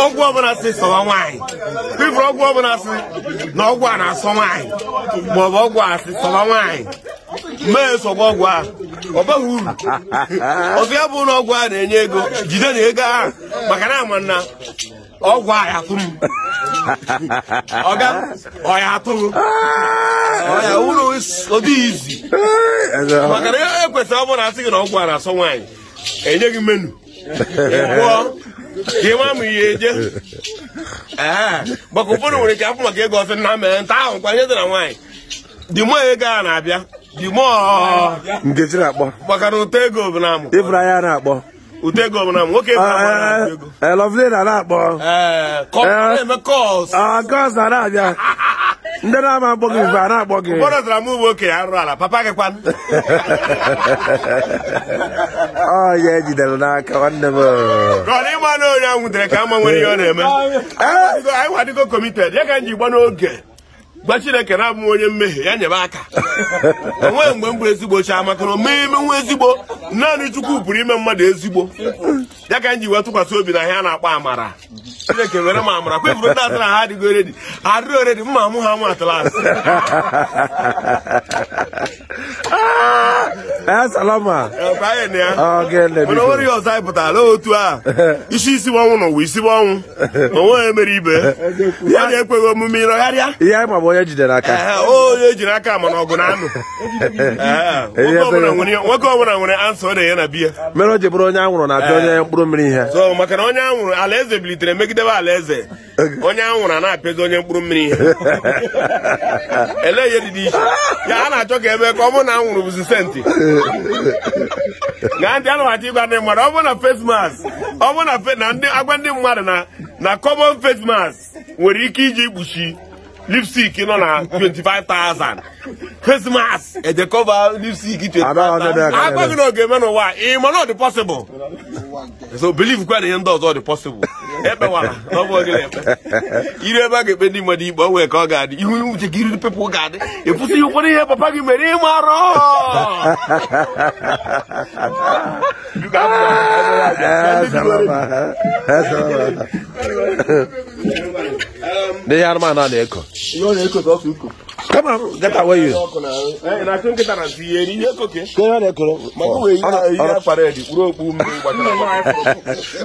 ọgwụ ọbụla si sọwa nwanyị bifuru ọgwụ ọbụla si na ọgwụ a na-asọ nwanyị maọbụ ọgwụ a si sọwa nwaanyị mee sọgba ọgwụ a ọ baghị uru ọzọ ya bụ na ọgwụ a na-enye ego jide na ego ahụ maka na ama na ọgwụ a ya atụ m ọga ọ atụrụ atụ m ụlọ ọdị izi maka na ekwesịrị ọ asị gị na ọgwụ a na-asọ nwanyị enye gị menu ị ịma ma ihe eje maka ụfọdụ nwere ike afụ maka ego ofe na mere nta ahụ kwanye dị na nwaanyị dị mụọ ego a na-abịa dị mụọ maka na ụtọ ego bụ na amụ ịbụrụ anya na-akpọ Utego m na nwoke eh, eh, Lovely na na-akpọ Gọs eh, ah, na na-abịa ndị na-ama gị mgbe na-akpọ gị ụfọdụ tara m ụmụ ala papa gị oh, ejidere e n'aka oh. ịma na ka ama ihe ọ na-eme ya ka gba chineke na-abụ onye mmehie ya nyebe aka onwe mgbe mbụ ezigbo chi maka na omee ime nwa ezigbo naanị chukwu pụrụ ime mmadụ ezigbo ya ka m iwetụkwasị tụkwasị obi na ihe a na-akpọ amara chineke were m amara kwefuru ndị atụ na ha adịghị oredi adịrị oredi mma mụ ha mụ atụla asị Eh, salama onwere ihe ọzọ anyị ala otu a isi isi ọnwụ na ụwa isi ọnwụ onwe mere ibe ekweghị omume ihe ma bụ onye jidere aka onye mana ọgụ na anụ ọbụla nwere ansa ọ na na o onye anwụrụ na-abịa eh, onye mkpụrụ mmiri ihe so maka onye anwụrụ alaeze bilitere megidebe alaeze onye a na-apịazi onye mkpụrụ mmiri ihe ele na-achọ ka ebe ọ bụrụ na anwụrụ bụzi senti gị gaa ntị anụwachi ịgwa ndị mmadụ ọ bụrụ na face mask ọ bụrụ na agwa ndị mmadụ na na common face mask nwere ike iji kpuchi lipstick nọ na 25,000 Christmas edekọba lipstick 25,000 agbaghị na oge eme n'ụwa ị ma na ọ possible so believe kwa na ihe ndị ọzọ dị ekpewara n'ọbụ gị ekpe iri ebe a ga-ekpe ndị mmadụ ikpe onwe ka ọ ga-adị ihu uche gị riri pepụ ga-adị ịpụsị ihe ụfọdụ ihe papa gị mere ịma arụ ndị ya a na-ekọ Come on, get away you. na kin kita na tiye ni ye koke. Ke ya na koro. Ma ko we ya na e ko. E nke nwa aka.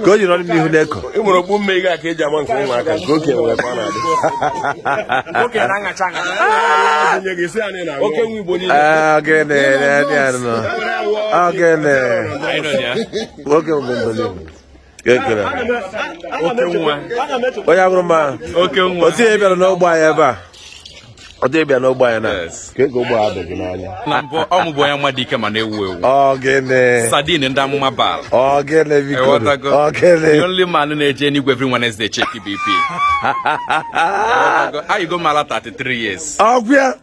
Ko ke na de. Ko ke na nga changa. Ah, nye ge se ani na. Oke nwi bo ni. Ah, ge ne, onye agụrụ m ahụ otu bịara n'ogbe anyị ebe a ọ dịghị bịa n'ogbe anyị na ka ego ụgbọ ọ mụbụ onye nwa dị ike ma na-ewu ewu ọgịnị sadin ndị amụma bal biko man na-eje n'igwe every Wednesday check e BP 33 years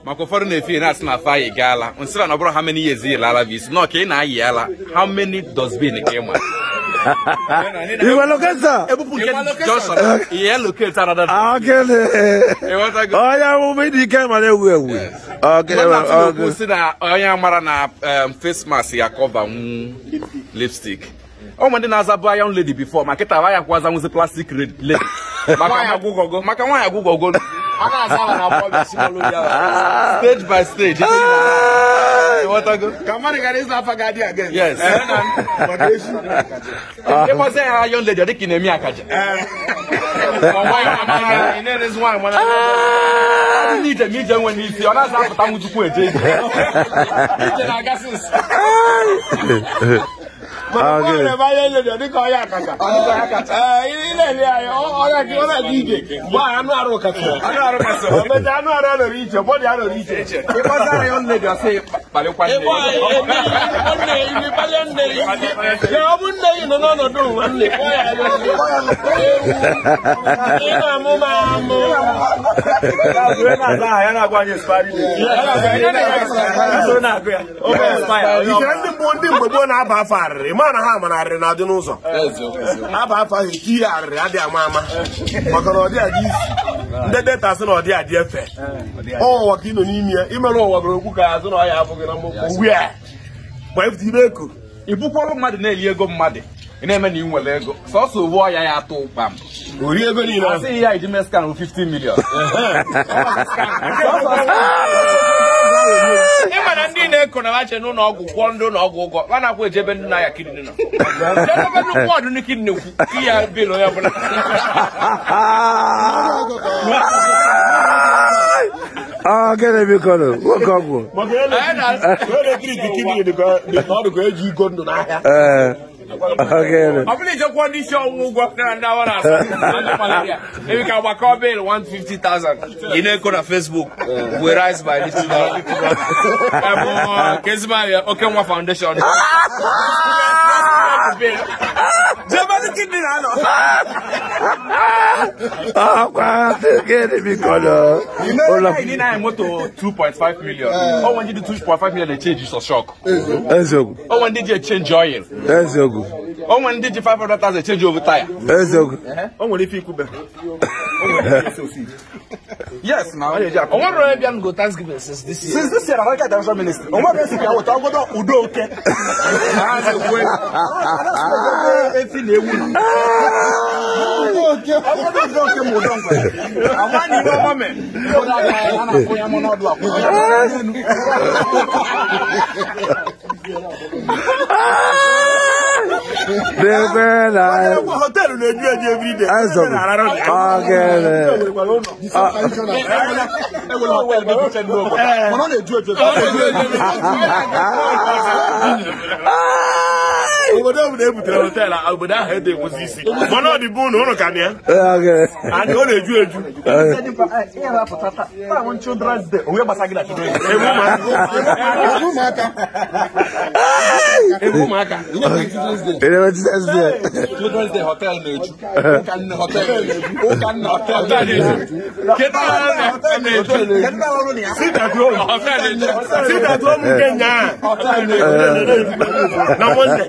maka ụfọdụ na-efi na-asị na afọ anyị gaala nsịra na ọ bụrụ how many years bụ nọ ka ị na-ayị ala how many dustbin ma You located. Iwaloketa. Ebupu okay. Iye locate another. Akele. Oya wo me di ke ma le wu ewu. Akele. Ogo si na oya mara na face mask ya cover mu mm, lipstick. o nwere ndị na-azabụ young lady before ma kịta ya kwaza nwụzi plastic lady maka nwaanyị agwụgwọgo stage by stage ah! ah. ịkpọzi ya ha yon lady ọ dị ka ị na-eme akaja ah! ije ma ije nwere isi ọ na-aza apụta nwụ chukwu eje ije na-ele anya ọrịa ije anụ arụ kasị anụ arụ anọrọ iche bọdị anọrọ iche ịkpọta dị asị ọ bụ nne ya na ndị mgbe gboo na-aba afọ arịrị ma ha ha amararịrị na adị n'ụzọ aba afọ ahụ eke ihe arịrị adị ama ama maka na ọ adị isi ndị deta sị na ọ adị efe ụwa ka ị nọ n'ime ya imerụ ụwa bụrụ okwu ka azụ na ọhịa abụghị na mmụkwu ugbu a ifute ibe eko ị bụkwara mmadụ na-eli ego mmadụ ị na-eme na ị nwere ego sọsọ uwe ọya ya atụ ụkpa ori ego niile asị ya iji meskan 50 million ị na ndị na-ekonache na n'ụlọ ọgwụ kwụọ ndị ụlọ ọgwụ ụgwọ a na-akwụ ejebe ndị na-aya kidini wọdụ ndị kidini kwu iya bil onye ọbụla ah, gịnị bikọrọ nwoke ọgwụ eji e iko ndụ Okay. I'm just one this show will go up now and now. Maybe can work out bill one fifty thousand. You know, go to Facebook. We rise by little dollar. Kesma, okay, one foundation. Jamani kini nalo. Ah, kwa kene mikono. Ola ni na moto 2.5 million. Oh, when you do 2.5 million they change you so shock. Ezogu. Oh, when did you change oil? That's Ezogu eziokwu o nwere ndị ji 500,000 change over tire eziokwu o nwere ife ikwube yes na o nwere onye bịa go thanksgiving since this year since this year america international ministry o nwere esi ka weta ọgodo udo oke efi na ewu na ọgodo udo Debe la. Hotel le dio di every day. Eso. Okay. Ah obodo ọbụla e butere họteelụ obodo ahụ ede enwezi isi mana ọ dị bụ na ụnụ ka dị ya anyị ọ na-eju eju ewu children's day hotel na-eju hotel na-eju na Monday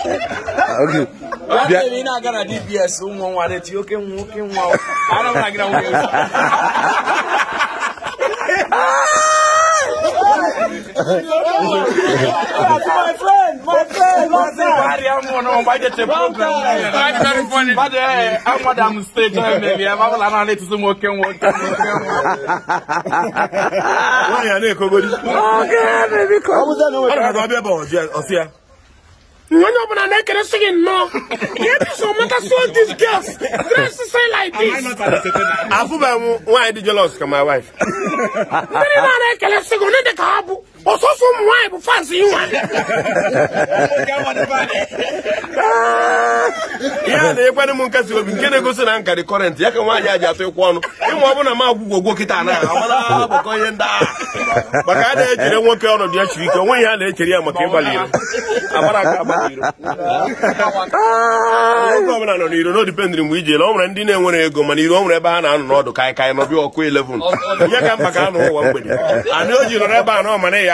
okay. Bia ni na gara DPS nwo nwa re ti oke nwo oke nwa. Ana mara gara nwo. My friend, my friend, what's up? Bari amu no mba je te program. Bari very funny. Bade amu da mu stage me me ma bala na le tusu mo ke nwo ke nwo. Wa ya ne ko godi. Okay, baby. Amu da no. Ana ba be ba o je o sia. onye ọbụla na-ekeresi gị nnọọ e these girls dress the same like this. afụbeghị m nwaanyị dị jealous ka my wife ndị na-ekeresi gị onye dị ka ha bụ ọsọsọ ụmụ nwaanyị bụ fans inwa ihe a na-ekwere m nkasi obi na-egosi na nkarị kọrentị ya ka nwaanyị a ji atụ ịkwụ ọnụ ịma ọ bụla m agwụgwọ ogwo kịta na agbakọ ihe agha a na-echere nwoke ọnọdụ ya chiri ike onwe ihe a na-echere ya maka ịgbalị iro agbara aka agbara iro nwoke ndị na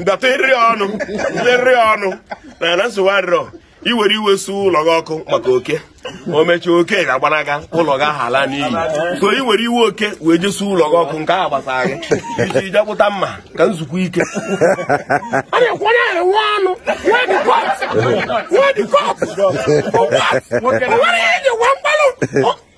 ndata eriri ọnụ eriri ọnụ na na nsogbu adịrọ iwere iwe su ụlọ gị ọkụ maka oke o mechaa oke ga-agbanaga ụlọ gị ahụ ala n'iyi so iwere iwe oke wee jesu ụlọ gị ọkụ nke ahụ gbasara gị iji jepụta mma ka nzukọ ike ọnụ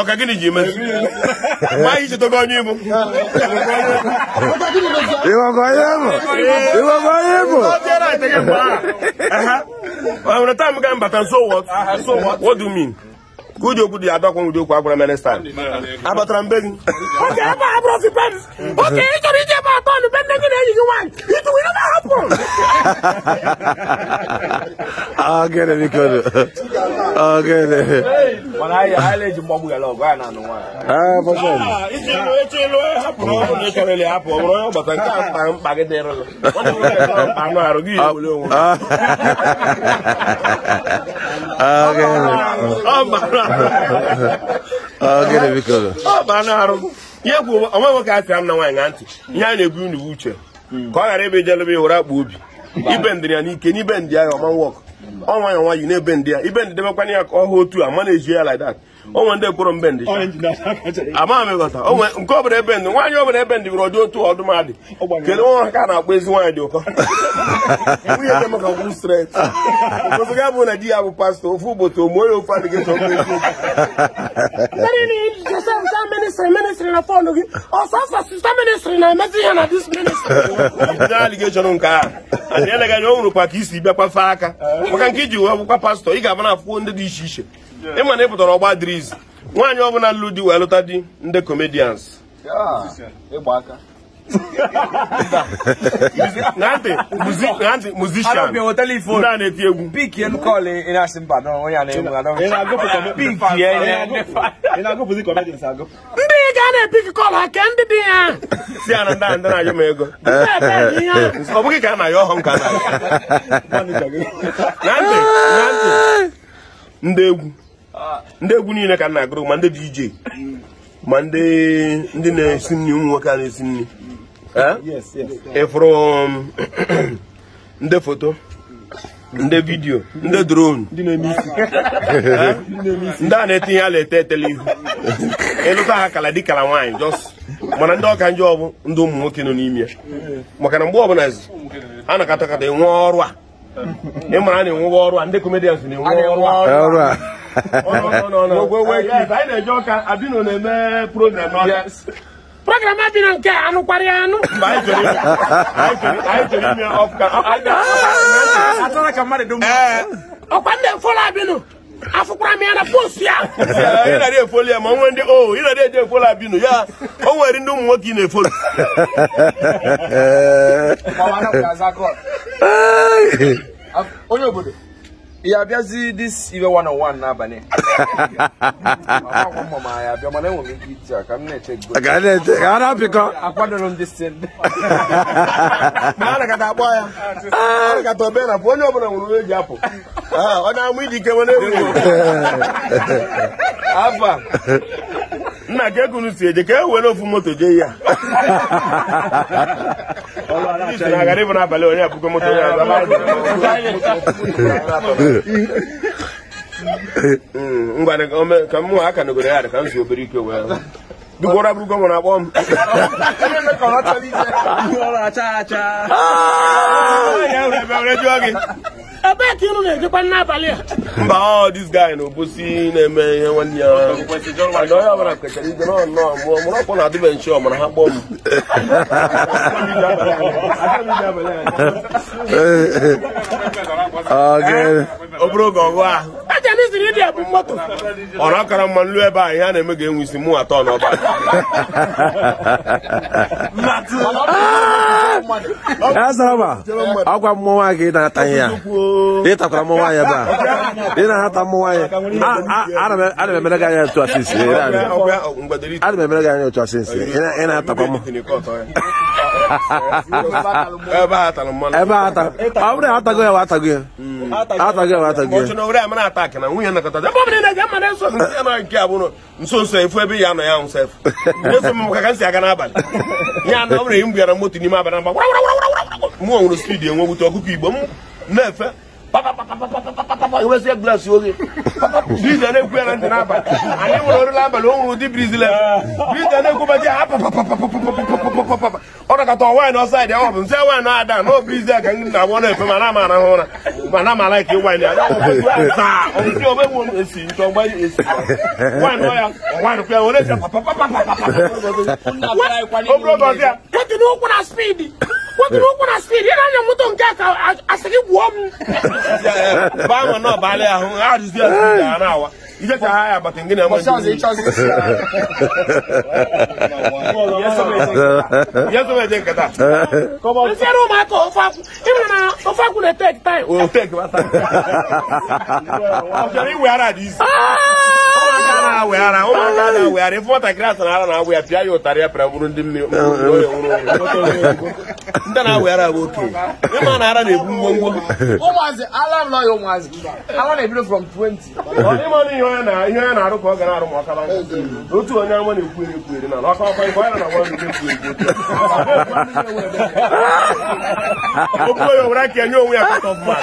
ọka gịnị ji eme maa ihe chetogo onye ibu ịghọgọ onye bụ ịghọgọ onye bụ ọhụrụ taa m ga mbata so what what do you mean ka uji okwu dị ya adọkwa ụdị okwu agwara mere stan abatara mbe gị Okay, ebe a bụrụ fipem oge ị chọrọ ije ebe atọ nụ be nne gị na-enyi gị nwaanyị itu were na hapụ ọ gịnị biko ọ gịnị mana na-anụ nwaanyị ah, e nke a mkpa gị ah, ah. ọ bụ arụ ihe kwu onwe nwoke atịra m na nwaanyị na ntị ihe a na-ebu unu uche hmm. ka ọ ghara ebe jelebe akpa obi ibe ndịrị ya n'ike n'ibe ndị ahụ ọma nwọkụ ọnwa ya nwa yi n'ebe ndị ya ibe ndị debekwana ya ka ọ hụ otu a mana eji ya like onwe ndị kpọrọ mbendị ama m ịghọta nke ọbụla ebe ndị nwaanyị ọbụla ebe ndị bụrụ ọdị otu ọdụmadị kedu nwa ka na-akpọ ezi nwaanyị dị ụkọ nwunye bụ na di ya bụ pastọ ofu ụbọchị omuo ya ofe adịghị aligeshọn nke a adịeleghị anya ọ nwụrụ isi aka eh. maka nke iji wee pastọ ị ga na ndị dị iche iche ma na ị pụtara ọgba dịrị nwaanyị ọbụla lụrụ di wee lụta di ndị comedians musician ndị a na-eti egwu ndị ga na-epik kọl ke ndị dị ya si ya na ndị ndị na-ayọ m ego ọ bụghị ka a na-ayọ ọhụ nka na ndị egwu ndị egwu niile ka m na-agụrụ ma ndị DJ ma ndị na-esi nri ụmụ nwoke a na-esi nri ịfụrụ um, ndị foto ndị vidiyo ndị drone ndị a na-etinye ala ete etele ihu ịlụta ha kala dị kala nwaanyị jọs mana ndị ọka njọ bụ ndị ụmụ nwoke nọ n'ime ya maka na mgbe ọbụla a na-akọta enwe ọrụ a ị mara na-enwewa ọrụ a ndị comedians na-enwe ọrụ a program adịrọ nke a ya anụ ọkwa abịnụ afụkwara eh. m ya na post ya ị nara efolu ya ma onwe ndị o ị nara eji efolu abinu ya o nwere ndị ụmụ nwoke eh. ị na-efolu onye obodo ya abịazi dis iwe 101 n'abalị a na-apịkọ akwadoro m disin anagata akpọ ya anagata obe na onye ọbụla nwere onye ji apụ ah, ọ na-amụ idike nwere ewu nna gị ego si eje ka e were ofu moto jee ya aghara ịbụ n'abalị onye abụgo moto ya hmm, ka m aka nogoro ya ka m si obere ike wee abụrụgo m na-akpọ ah! m ebee ka inu na-ejekwa n'abalị a mba ọ dis guy na obosi na-eme ihe nwanne ya onye ọbụla kwechara ibe nọ nnọọ mụọ mụrụ ọkpọ na adịbe nche ọmara ha kpọọ m ọ bụrụ oge ọgụ ahụ ọrụ akara mma nlu ebe a ihe a na-eme ga-enwe isi mụ atọ n'ọba ha mmụọ ha ha ha na ha ya ịtakwara mmụọ nwaanyị ebe a ị na ha mmụọ nwaanyị ha m emere gị anya otu ha ha ha ha ha ha ha ha ị na-atakwa ha atago ya atago ya nso nso efu ebe ya ya nso efu m aga n'abalị ya na ọ bụrụ m bịara moto n'ime abalị mgba mụ nwere spidi enwegbute na-efe papa wezie glas oge briza na-ekwu ya na ntị n'abalị anyị nwere oriri abalị o nwere ụdị briz le briza na-ekwu baji ha papapapapapapapapapapa ọ nakọta ọwaanyị ọsọ ya dị ọ bụ na-ada na ọ briz ya ka na-agba na ma na-ama arahụ ụra ma na-ama laik nwaanyị ya ọsị wotiri o kuna siri yɛrɛ ni moto n kɛ ka a sigi buwɔ mu. ba ma nɔ baale a hun a dusu yɛ sun jaa n'a wa i jɛ taa a bato n gina ma ju. yasɔbɛ jɛn ka taa. n seri o ma tɔ o fa kun i bɛna o fa kun de tɛki tan ye. o tɛki wa tan. o sɔrɔ i wɛrɛ a di. Ah! na-awegharị ụmụaka na na-awụ ya pịa ya ụtarị ya pịara bụrụ ndị mmiri ndị na-awegharị abụ okenye ịma na ara na-ebu na arụ ka ọ ga na-arụ ma otu onye na-ekwu eri na ọkwa ọkwa ya onwe ya kọtọ mma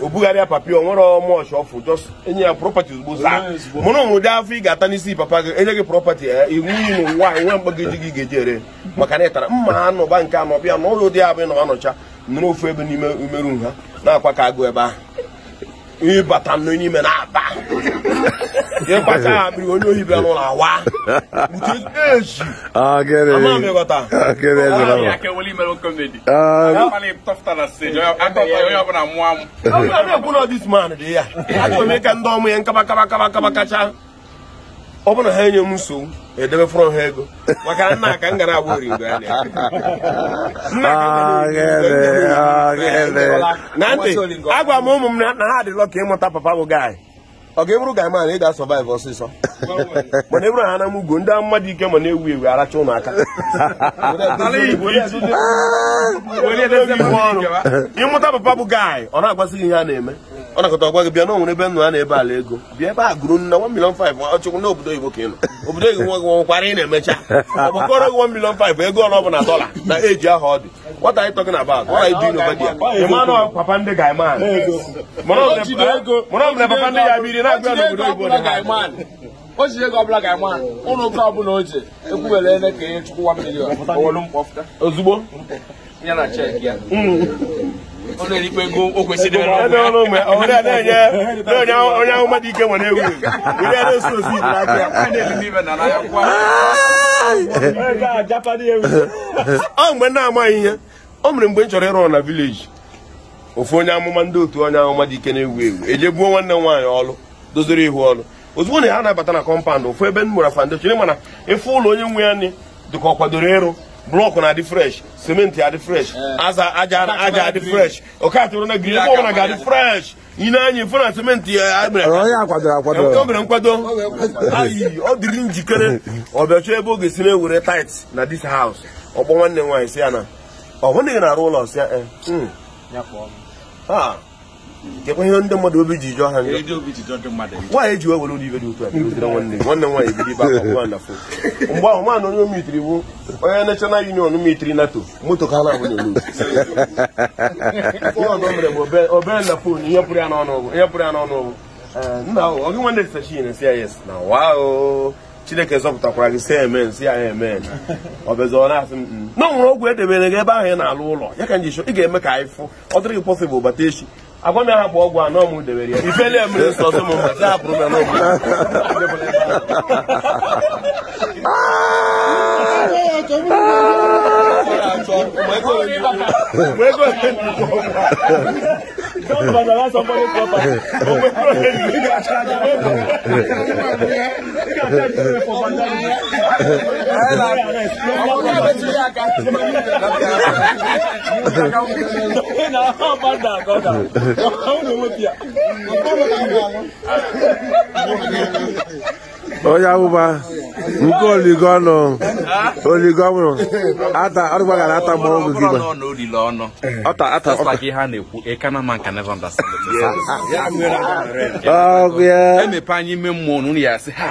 o bugharịa papi o nwere mọchị ọfụ just enye ya prọpati ozugbo zaa mụ na afọ ị ga-ata n'isi papa gị enye gị prọpati ya eh, iwu ụmụ nwaanyị nwe mgbagoji gị ga-eji ere maka na tara mma anụba nke anọ bịa n'ụlọ dị abụ na anọcha nụrụ ofu ebe n'ime umeru ha na-akwa ka agụ ebe ahụ ịbata n'ime na-aba ịgbacha akpịrị onye ohi bịa n'ụlọ awa ka ndị ya kacha ọ bụrụ na ha enye m nsogbu edebe fọrọ ha ego maka nna ka m gara agba origo anya na ntị agwa m ụmụ m na ha adịlọ ka ịmụta papa bụ gaị ọ ga-eburu gaị ị ga-asọvaịvụ ọsịsọ mana eburu ha na m ndị mmadụ ike ma na-ewu ewu aracha ụnụ aka ịmụta papa bụ gaị ọ na-agwasị gị ihe a na-eme ọ nakọta ọgwa gị bịa n'onwere ebe na ebe ala ego bịa ebe a gụrụ nna 1 million 5 ọchụkwụ na obodo oyibo ka ị obodo oyibo nwe nwekwara ị na-emecha ọ bụkọrọ gị 1 million 5 ego ọla ọbụla dọla na eji aha ọ dị what are you talking about what are you doing over there papa ndị ọbụla papa ndị ya biri na-agụ n'obodo oyibo o ji ego ọbụla ga-ama ụlọ ọbụla o ji ekwubere ka ihe na ọ na-erikwa e mgbe na-amaghị ihe o mere mgbe m chọrọ ịrụ na vileji ofu onye amụma ndị otu onye ahụ mmadụ ike na-ewu ewu eje gbuo nwanne m nwaanyị ọlụ doziri ihu ọlụ ozugbo na ha na-abata na kọmpandụ ofu ebe m mụrụ foundation mana ịfụ ụlọ onye nwe ya nị dịka ọ kwadoro ịrụ block na-adị fresh simenti adị fresh eh. aza aja aja adị fresh ọkatụrụ na giri ọbụla ga-adị fresh ị na-anya cement na simenti ya mere nkwado ayi ọ diri njikere ọ bịachọ ebe ọ ga-esi na-ewere tait na dis haus ọkpọ nwanne m nwaanyị si ya na rule hụghị na-arụ ụlọ si nkekwa ndị mmadụ obi ji jụọ ha nwaanyị ji wewere ụlọ dị otu a nwanne nwaanyị ibe akwa na fon mgbe ahụ nwaanyị onye mitiri bụ onye nashọnal union mitiri nato moto ka ha na-abụ na-elu mere bụ obere na fon ihe pụrụ ya n'ọnụ ọgwụ nna ahụ nwanne sachi na na wao chineke zọpụtakwara gị si si ya na-asị m na mm. nwere ọgwụ edebere gị ebe ahụ ị na-alụ ụlọ ya ka nji ị ga-eme ka anyị fụ ọ dịrị gị bata echi agwa m ya hapụ ọgwụ anọ m debere ya ifeli emere nsọ m mgbe taa hapụrụ m n'ọgwụ Thank onye abụba nke oligo ọnụ oligo ọnwụrụ ata gara ata mgbe ọgwụ gị ọgụ ya emepe anyị ime mmụọ ya asị ha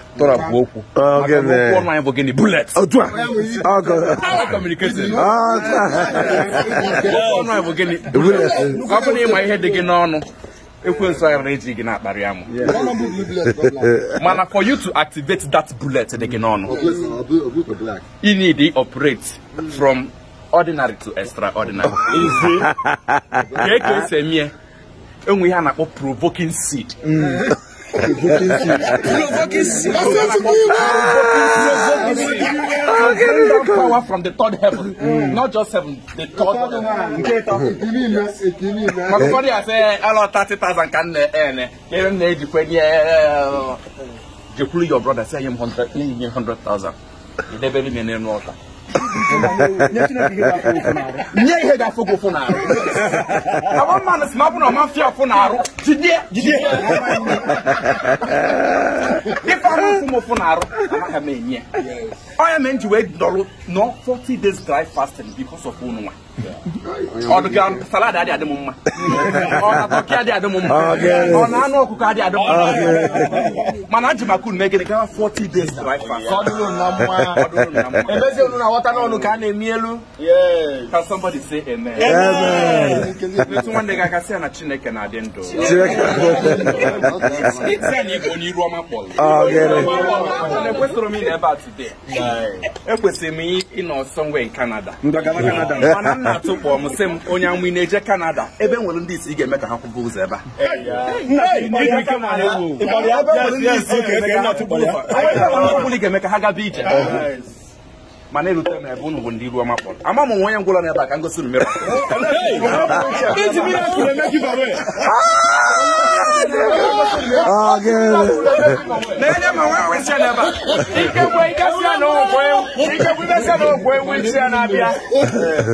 tọrapụ okwu ah, okwu ọnụ anyị bụ gịnị bullet. otu a ọnụ anyị ah, ah, bụ gịnị ọ bụrụ na ịma ihe dị gị n'ọnụ ekwensu anyị nwere eji gị na-akparị amụ mana for you to activate that bullet dị gị n'ọnụ you need to operate from ordinary to extraordinary ka eke esi emie enwe ihe a na-akpọ provoking seed mm. Provoking seed. Provoking seed. That's what you mean. Provoking seed. power from the third heaven. Mm. Not just heaven, the third heaven. Mọ̀kúfọ́dí àṣẹ ẹlọ thirty thousand kan nẹ ẹ nẹ kí n nẹ jìkú ẹni your brother say him hundred hundred thousand. Ìdẹ́bẹ̀rẹ̀ mi nínú ọ̀tá nyɛ ihe da fogo fo naaro awo ma no sima bona ɔma fia fo naaro jideɛ jideɛ nipa ho fumo fo naaro ama ka ma enyiɛ ɔyɛ mɛ nti wɛ dɔlo nɔ forty days dry fasting because of wo no ọdụ gị salad adị adị m mma ọkị adị adị m mma ọ na anụ ọkụkọ adị adị mma mana ajụ maka unu megide 40 days dry fast ọdụrụ na mma ebezi unu na ghọta n'ọnụ ka a na-emi elu ka somebody say amen etu nwanne gị aka sị na chineke na-adị ndụ ọma kpọrọ ekwesịrị m ịnọ ebe a today ekwesịrị m ịnọ somewhere in Canada mana na-atụ m sị m onye anwụ ị na-eje Kanada ebe nwere ndị isi ga-eme ka ha kwụba ụzọ ebe a ga-eme ka ha gaba ije mana erute m ebe unu bụ ndị iru ọma kpọrọ ama m nwe onye ngwụla ebe a ka ngosi unu mere Ah, good. Nene mawa wesia neba. Ike kwa ika sia na okwe. Ike kwa sia na okwe wesia na bia.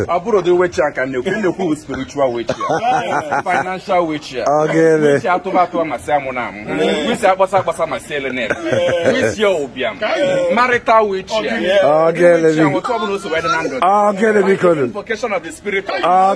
Aburo de wesia kan ne kun de ku spiritual wesia. Financial wesia. Ah, good. Wesia to ba to amasia mo na mo. Wesia gbasa gbasa ma sele ne. Wesia obiam. Marital wesia. Ah, good. Wesia mo to bu no so wedo na ndo. Ah, good bi ko. Invocation of the spirit. Ah,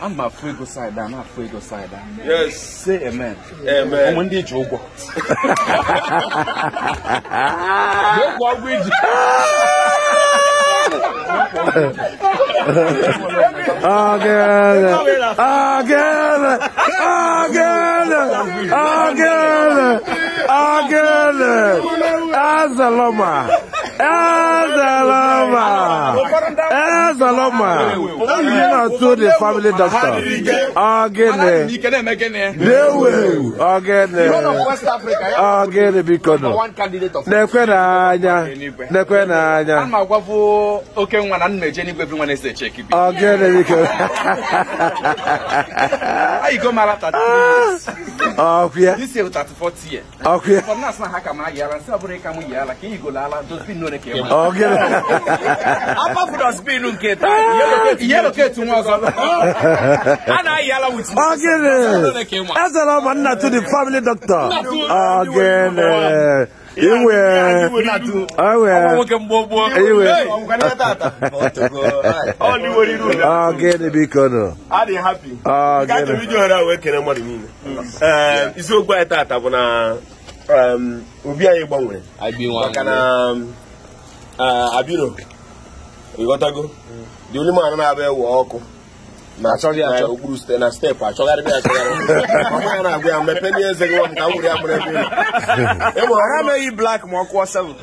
ama afụ ego saịda a na-afụ ego saịda say amen ụmụ ndị ji ụgwọ n'okwu ọgwụ iji Again, again, again, again, again, Ezaloma. Ezeloma! You know, to the family doctor. Again, they will. Again, again, because one candidate of Nequenanya, Nequenanya, and my wife, okay, one and major, everyone is a check. Again, because you go Marata. Oh, yeah, this is 40 years. Okay, for Nasa Hakamaya and here, like you go Lala, don't be no. Chineke ọ gịnị akpafuru ọsipinu nke I'm ketu nwa ọzọ a na-ayị ala wuchi ọ gịnị ezela ma nna to the family doctor ọ gịnị iwe iwe ọ gịnị biko nụ ọ gịnị isiokwu anyị tata bụ na obi anyị gbanwere maka na Ah, abiro ịghọtago Di mm. only man na-abịa ewe ọkụ okpuru site na steepụ achọgharịba achọgharị ya na-agwa ya mmepe ndị eze gị ka m ya mụrụ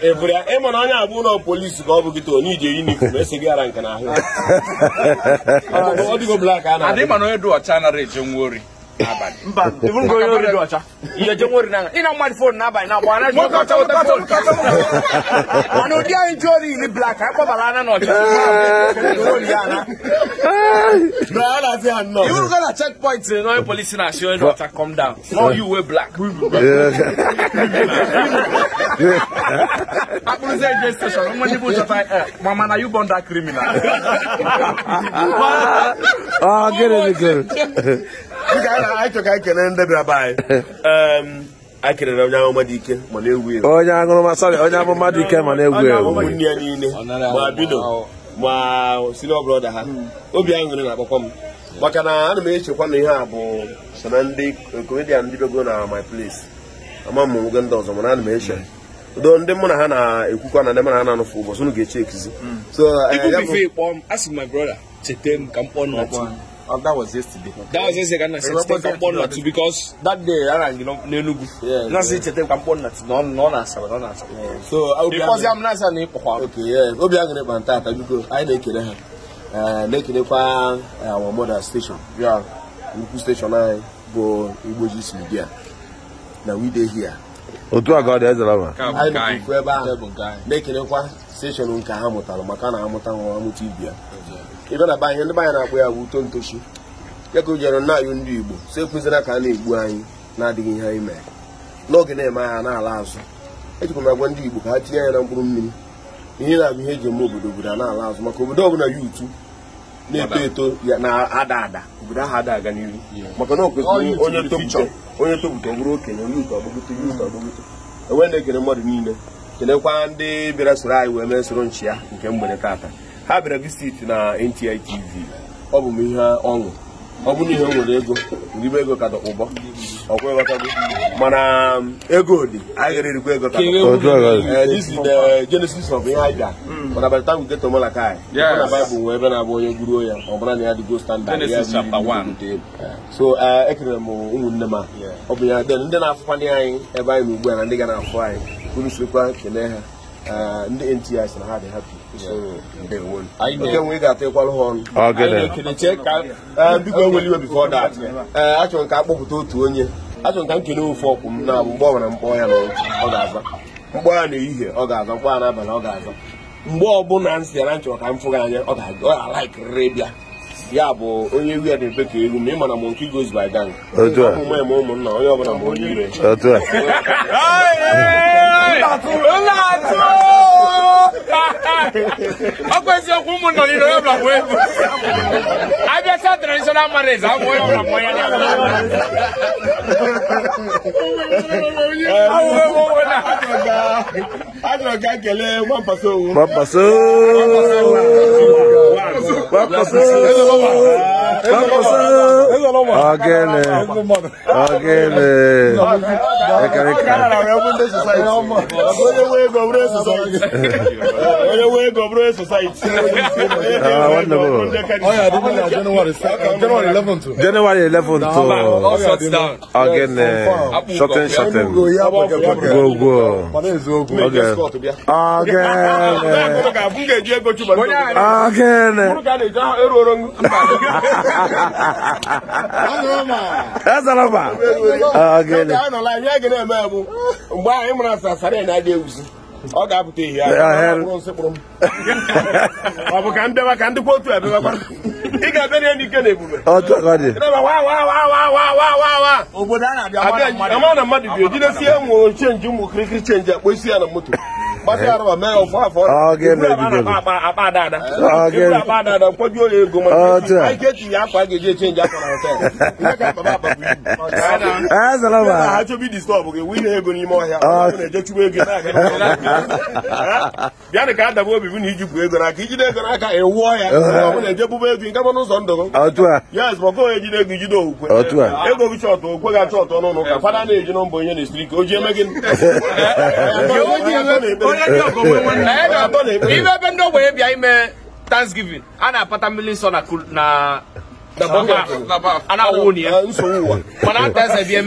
ebe eh, ya ịma na onye abụ ụlọ polisi ka ọ bụ gị to onye ije yunifọm esi gị ara nke ya. ọ dịgo blak a na-adị mba ibu ngo onye oriri ọcha ihe je na n'anya ịna mmadụ fon n'abalị na agbara ji ọcha ụta fon mana ụdị anyị ji ori iri blak anyị kpọbara ana n'ọcha ibu go na checkpoint na onye polisi na-asị onye ọcha come down no you wear black akpụrụzi eje steshọn nwa ndị bụ chọta mama na you born that criminal ọ gịnị anyị chọrọ ka anyị ehm, onye ike ma na-egwu onye aṅụrụma sọrị onye amụma dị ike ma na-egwu egwu obi aṅụrị na-akpọkwa m maka na ana m echekwa na ihe a bụ so na ndị komedian ndị bego na my place ama m nwoge ndị ọzọ mana ana m eche do ndị mụ na ha na-ekwukwa na ndị mụ na ha na-anụfụ ụbọchị unu ga-eche ekizi so Oh, that was yesterday. That was yesterday said sete ka mkpọ nna because that day a na-agị n'Enugu. Na sị yeah ka mkpọ nna tu na ọ na-asaba na-asaba. So na na ịkpọkwa. Okay, yeah. Obi aṅụrị kpa nta anyị na-ekele ha. Na-ekelekwa our mother station ya nnukwu station anyị eh, bụ Igbojis Media na we dey here. otu a ka ọ dị ezere ma anyị bụ ebe ahụ na-ekelekwa eh, steshọn nke ha mụtara maka na amụta nwa amụta ibi ya ịbịa na be ndị be anyị na-akpọ ya bụ uto ntochi ya ka o jere nna anyị ndị igbo so ekwuzila ka a na-egbu anyị na-adịghị ihe anyị mere n'oge na-eme aha na-ala azụ ejikwa m agwa ndị igbo ka ha tinye anya na mkpụrụ mmiri ihe na-abụ ihe eji eme obodo obodo a na-ala azụ maka obodo ọbụla ya utu na-eto eto ya na-ada ada obodo ahụ ada aga n'ihu maka na okwesịrị onye topụta onye topụta ọ bụrụ okenye onye uto ọgbụgote onye uto ọgbụgote enwe na-ekele mmadụ niile kelekwa ndị bịara soro anyị wee mee soro nchi ya nke mgbede taata ha bịara visit na NTI TV ọ bụ m ihe ọṅụ ọ bụrụ ihe nwere ego ribe ego ka dọkpụbọ ọkwa mana um, ego dị anyị gara erikwa ego ka eh, this is the genesis of ihe anyị bịa hmm. mana by the time we get to Malakai na Bible nwee ebe na-abụ onye guruo ya ọ bụla na ya dịgo standard ya so eh, ekelere m ụmụnne m ọ bụ ya ndị na-afụkwa ndị anyị ebe anyị na ugbu a na ndị ga na-afụ anyị unu sirikwa kelee ha eh, ndị NTI si na ha dị hapi. enwe ga-atịkwalụ ha ọnụ biko enwere iwe bifo dat ee achọrọ ka a kpọpụta otu onye achọrọ ka m kele ofu ọkwụ m na mgbe ọ mkpọ ya na ọ ga-aza mkpọ ya na ehihie ọ ga-aza mkpọ ya n'abalị ọ ga-aza mgbe ọbụla m si ya na nchọrọ ka m fụ gị anya ọ ga-alaikirịrị bịa ya bụ onye wi na-ebe ka elu m ị mana m nke goes by gang ụmụ ya ma ụmụnna onye ọbụla ma onye a a a a a ọkwa eziokwu ụmụnna a onye ọbụla nwee ego abịa a traditional marriage ahụ onye ọbụla a ya Ajọ ga kelee gbampaso a gbampaso Ọ̀gẹ̀nì ọ̀gẹ̀nì January 11 to ọ̀gẹ̀nì shorten shorten gbogbo ọ̀gẹ̀nì ọ̀gẹ̀nì ọ̀gẹ̀nì. a. Ah, mgbe anyị mara asasara ya na-adị ewuzi ọ ga-apụta ihe ọ bụ ka mbịawa ka ndịkwa otu abịawa ị ga-abịa na ike na ebube obodo a na-abịa mana mmadụ bi ojidesie nwe chenji ụmụ kirikiri chenji akpọ isi ya na moto ha chọba idistọbụ gị winye ego n'ime ọhịa na-ejechukwa ego a. ka adaba obibi na ijikwu ego n'aka ijide ego n'aka ewuọ ya ọ bụla ejebuba a. gị ego gị okwe gị achọ ọtọ na-eji o ibe ebe ndị ebe bịa ime thanksgiving a na-apata mmiri na a na mana ata eze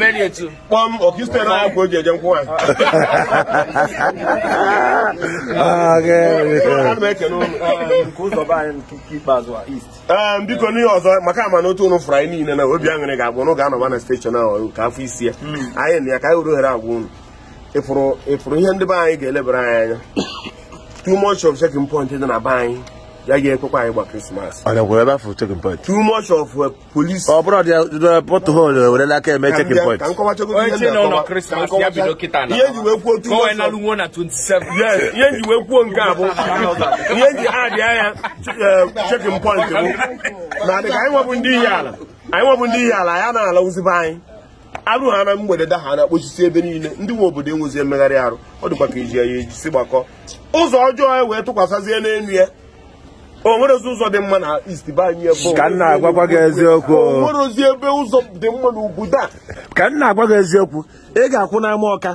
kpọm na nkwụ ah, ah, anyị ah, biko n'ihe ọzọ maka ama na otu ụnụ fụrụ anyị niile na obi aṅụrị ga-agwụ ụnụ ga-anọba na steshọn ahụ ka afọ isi ya hmm. anyị na ya ka anyị were agwa ụnụ ịfụrụ ihe ndị be anyị ga-elebara anyị anya too much of checking point dị na be anyị ya ga-ekwekwa anyị gba krismas too of uh, police ọ bụrụ aka eme checking point ihe nji wee kwuo nke a bụ ihe nji anya uh, checking point bụ na adị ka anyị nwebụ ndị ihe ala anyị nwebụ ndị ala ya na-alawụzibe anyị arụ ha na mgbede da ha na-akpọchisi ebe niile ndị nwe obodo enwezi mmegharị arụ ọ dịkwa ka iji ya ejisi gbakọ ụzọ ọjọọ ya wee tụkwasịzie n'elu ya o nwerezi ụzọ dị mma na isti be anyị ebe ka nna agwagwa gị eziokwu o nwerezi ebe ụzọ dị mma na ugwu da ka nna agwa gị eziokwu ị ga-akwụ n'ama ọka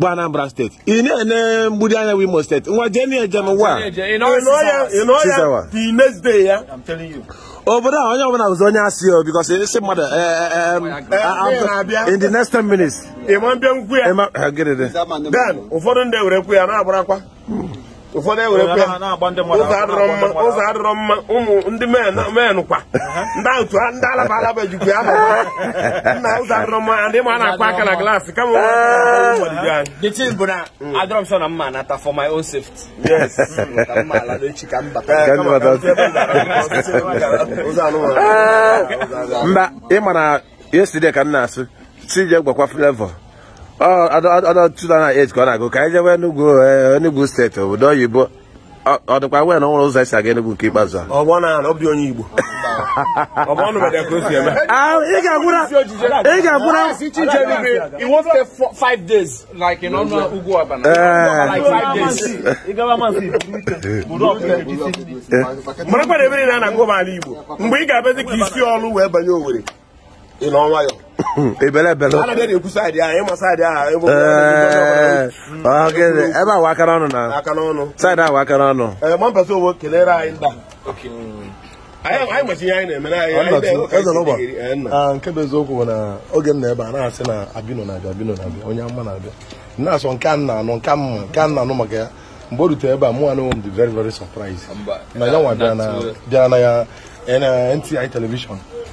bụ Anambra steeti ị na-ene mgbidi anya bụ Imo steeti nwa jee na ejem ụwa ya Tuesday ya obodo a onye ọbụla bụzi onye asị o because esi mmadụ eh, eh, eh, ah, in the next 10 minutes ịma mbịa nkwu ya ụfọdụ ndị ewere nkwu ya ụfọdụ ewerekwa ya ụzọ adịrọ mma ụmụ ndị men kwa ndị alaba alaba ejikwa ya nna ụzọ adịrọ mma ndị ma na-akwa aka na glaasị kama the thing bụ na mm. adịrọ m sọ na mma nata for my own safety yes mm, ka mma ala n'echi ka mba eh, mba ị ma na yesterday ka m na-asụ tije gwakwa flavor ọdọtụtụ a na ka ọ na-agụ ka anyị jewe Enugu eh, Enugu steeti obodo oyibo ọ dịkwa nwee na ụzọ esi aga Enugu nke ikpeazụ ah, eh. marakwa na ebere na a na-agụ ala Igbo mgbe ị ga-abịazi ka isi ọlụ wee banye Owerri Hmm, ebele eh, ebele eh, eh, ebe awa akara ọnụ na saịdị awa akara ọnụ ah, nke bụ eziokwu bụ na oge na ebe a na-asị na abino na abino na-abịa onye na abi na na-anụ nke nke a na-anụ maka ya o rutere ebe mụ very very surprise na ya nwa na ya NTI television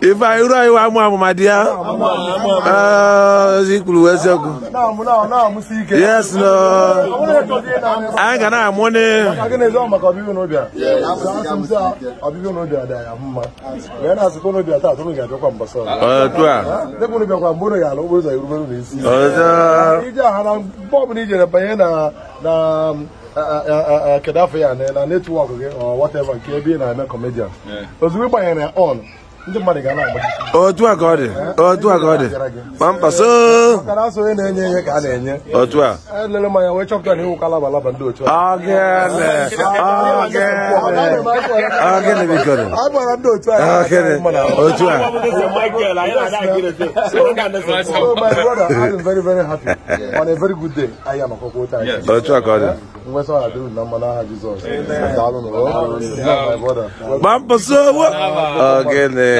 ife anyị ruo anyị amụ amụma dị ya ikwuru eziokwu yes no anyị ga na-amụ ne otu a ije aha na mgbe ọbụla ijere banye na kedafọ ya na netwọk gị whatever nke ebe ị na-eme comedian ozugbo ị gbanyere on ndị otu a ka a onye na-enye ihe ka a na-enye a elele m a a a a a na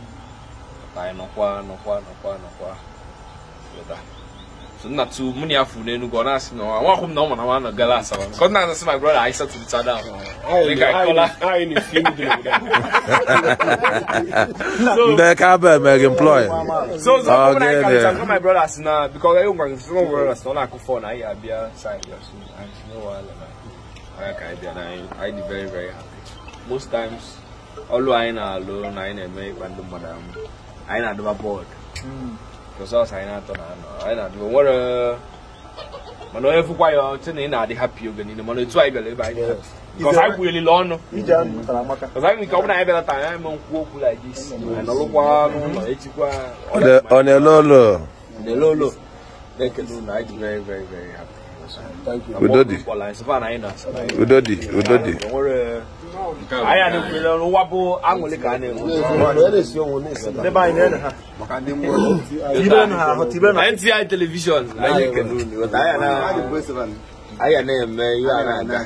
ka anyị nọkwa nọkwa nọkwa so nna tu mụ na ya n'Enugu ọ na-asị na nwa akwụ na ọ mụna nwa nọ gala asaba na-asị ka ya my brother sị na brother very very happy most times ọlụ anyị na-alụ na na-eme ịkwa ndị mmadụ ahụ anyị na-adụba bọọdụ hmm. mana onye fụkwa ya ọchị na ị na-adị hapi oge niile mana etu anyị bịara ebe anyị anyị kwulile ọnụ anyị nke ọ na anyị bịara taa anyị ma nkwu okwu like this anyị n'ụlọ e ọ na-ele ụlọ anyị dị very very very happy Udodi. Udodi. Udodi. Aya ni kule lo wa bo angole ka ni. Ele si ohun ni sada. Ne ba ni na ha. Maka ni mo. Tibe na ha, tibe na. NTI television. Aya na. Aya na me ya na.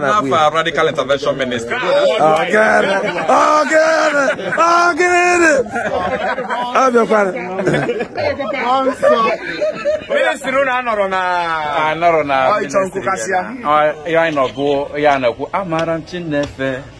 Ghana, please. Ghana radical intervention Minister. Oh, Ghana. Oh, Ghana. Oh, Ghana. Oh, no, Ghana. Ministry na anọrọ na anọrọ na. Ọ ịchọ nkụ kasịa. Ọ ya nọ bụ ya na-ekwu amara Chineke.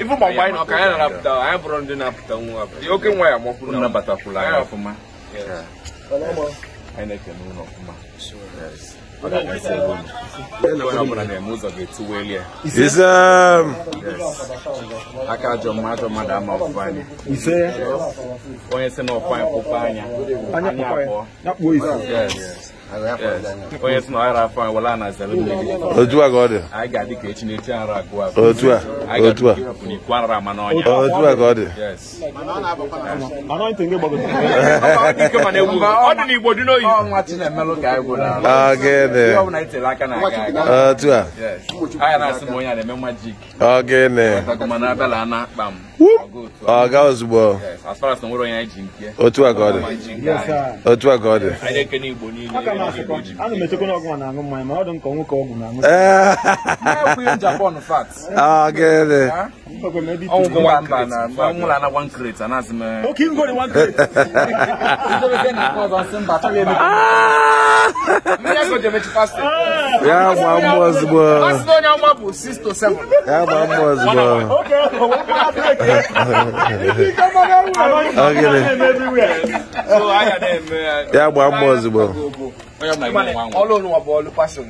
i ụmụ nwaanyị na ọka anyị na-apụta anyị bụrụ ndị na-apụta nwa oke nwa ya amakwụrụ nabatakwụla anyị anyị na-ekene ụlọ ọfụma aka jọ um, mmadụ mmadụ ama ọfụfa anya onye si na ọfụfa anyị anya anya abụọ onye si na ọhara afọ anyị wala na zere mmiri otu a ka ọ dị anyị ga-adị ka echi na ara otu a otu a n'ikwu ama n'ọnya otu a ọ dị n'igbo dị n'oyi ọ nwa chi na otu a ọ gịnị ọga ozugbo otu a ka ọ dị otu eh. ah, ah? a eh. ah! ka ọ dị ya gba mbọ ozugbo ya gba mbọ ozugbo ya gbaa mbọ ozugbo ọlụ ụwa bụ ọlụ pasịn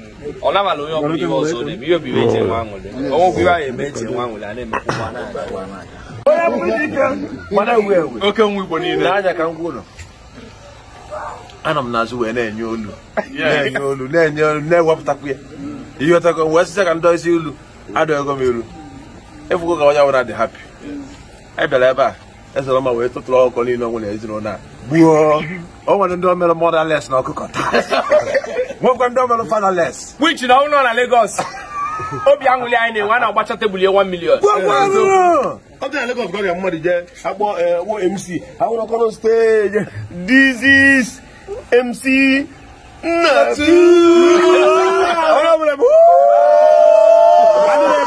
ọ nabala onye ọbụla ihe na-eme ihe obiwe eji enwe aṅụrị ọnwụ obiwe na eme eji enwe aṅụrị a na-emekwa ụwa na-aga oke nwa igbo niile n'anya ka m na-enye olu na-enye olu na-enye olu na-ewepụtakwu ya wee ka m ilu anyị bịara ebe a ezere ọma wee tụtụrụ ọkụkọ niile ọnwụ na ezinụlọ a gbuo o nwere ndị omere mọdales na ọkụkọ taa nwekwa ndị omere fanales Wich na ụlọ na Lagos obi aṅụli anyị na-enwe na-agbacha tebụl ya 1 million ọdịna Lagos gọrịa mmadụ jee akpọ e, wo MC awụrụ ọkọrọ steji dizis MC Nnatu onye ọbụla bụ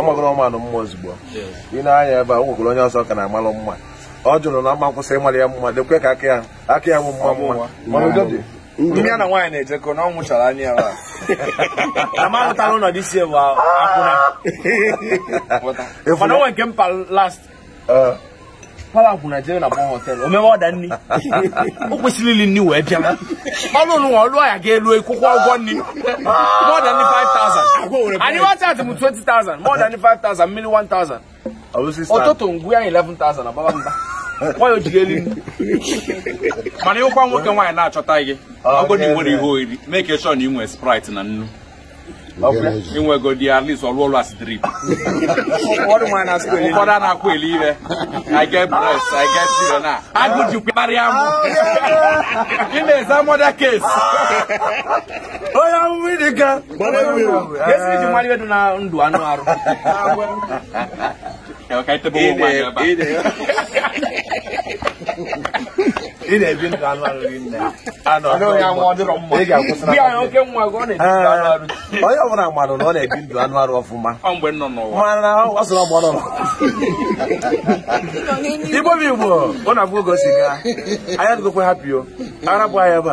ọmagoro ọmanụ mma ozugbo ị na-anya ebe a nwegoro onye ọzọ ka na-amalụ mma ọ jụrụ na mma nkwụsị ịmalị ya mma dekwe ka aka ya aka ya bụ mma mma ndị ya na nwaanyị na-ejekọ na ọ nwụchara anya ya amahụtala ụlọdị isi ewu akwụna mana onwe nke mpa last pala akwụna Nigeria na gbọn họtel o mewe ọda nri o kwesịrị ili nri wee bịa ọnụ ụlọ nwa ọlụọ ya ga-elu kwụkwọ ụgwọ nri mọda nri 5000 anyị wata atụ m 20000 mọda 5000 mmiri 1000 ụtụtụ ngwu ya 11000 ababa mba nwanyị ojiri elu mana nwoke nwaanyị na-achọta gị oh, agụdị nwere ihe ị na sprite na nnu inwegodi at least ọrụ ọrụ asidiri ụfọdụ a na-akwụ eli i get breast i get children you agụji kparịa m ị some eza mọda ah. Oh, onye amụmụ the girl. ji mmadụ ịdị na ndụ anụ arụ ka anyị tebe ụmụ nwaanyị ebe a ị na-ebi ndụ anụ arụ gị nne onye ọbụla mmadụ na ọ na-ebi ndụ anụ arụ ọfụma mana ọ sọrọ mgbe ọ nọ igbo bụ igbo ọ na-abụ oge o si gaa anya hapụ yo ara bụ anya ebe a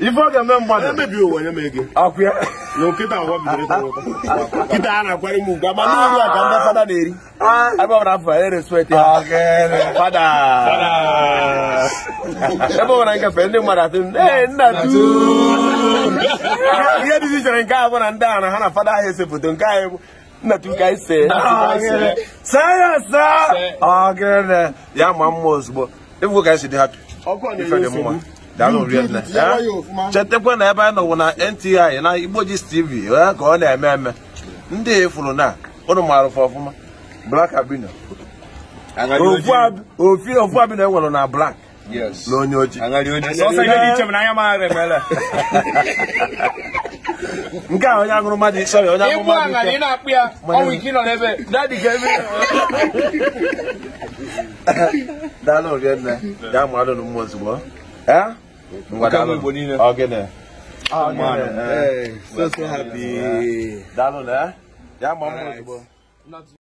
ife ọ ga-eme mmadụ emebi ụwa nye m ego akwụya na nkịta ụwa bidoro ịta ụta nkịta a na-akwara m ugwu agba n'elu a ka ndị fada na-eri ah. ebe ọbụla afọ ya respekt ah, ha fada ebe ọbụla nkefe ndị mmadụ asị ee nna ihe dị ichere nke a bụ na ndị ahụ na ha na fada ahụ ese foto nke anyị nna ka anyị see saa ah, ya saa ya ma mma ozugbo ịfụ ka anyị si dị hapi ife dị mma chetakwa na ebe anyị nọwụ na NTI na Igboji's TV ya ka ọ na-eme eme ndị e fụrụ na ụnụ maara ụfụ ọfụma Black Albino ofi ofu abino enwere na black na onye oji nke a onye aṅụrụ mmadụ sọrị onye mmadụ ike daalụ mmadụ na mmụọ ozugbo Ah, eh? Mkame bonine. A gene. A man. Hey, so so happy. Dalon eh? Ya mamu. Not